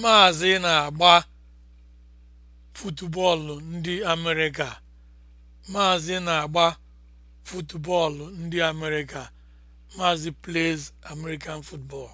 Maazị na-agba futubọọlụ ndị Amerịka. Maazị na-agba futubọọlụ ndị Amerịka. Maazị plays American football.